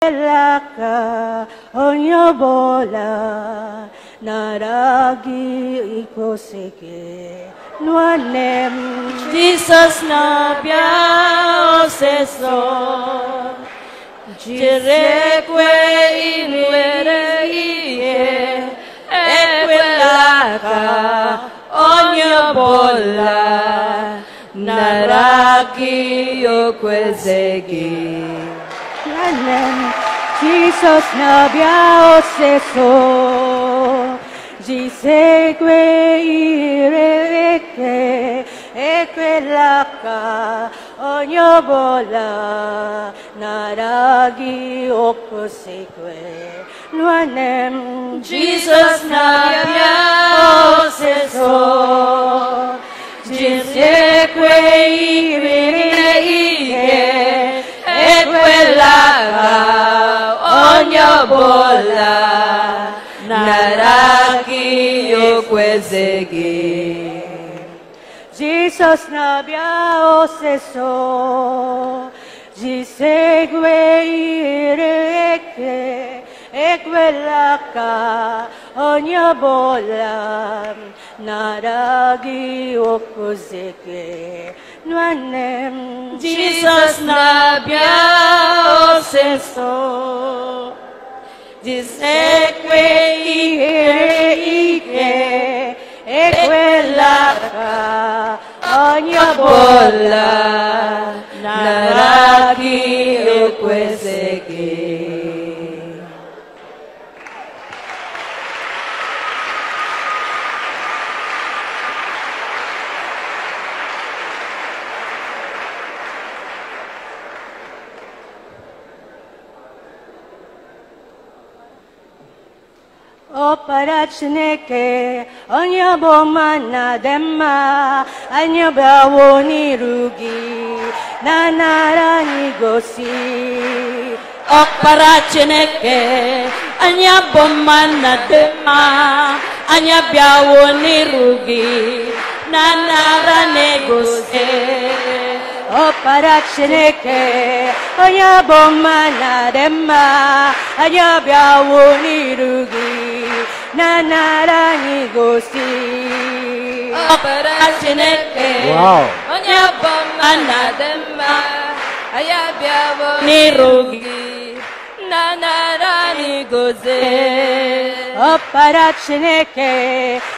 Raka onyobola naragi ikoseke nuanem Jesus na bia oseso jirekwe inwere iye ekwelaka onyobola naragi okwezegi Jerusalem, Jesus nabia oseso, jisegue ireke, ekwelaka, onyobola, naragi okusikwe, nuanem, Jesus nabia oseso, jisegue ireke, Maha Onyo Bola Naraki Yokwezegi Jesus Nabia Oseso Jisegwe Ireke Ekwelaka Onyo Bola Naragi Okwezegi Nwanem Jesus Nabia suceso. Dice que ike i ekwela ka onye ọbụla na O para Chineke, onye bụ ọma na dị mma, anyị bịawo na nara anyị gosi. Ọkpara Chineke, anyị bụ ọma na dị mma, anyị bịawo n'iru gị na nara na-egosi. Ọkpara Chineke, onye bụ ọma na dị mma, anyị bịawo 나나랑이 곳이 어빠라시네께 언야범 만나든마 아야비아보 니로기 나나랑이 곳에 어빠라시네께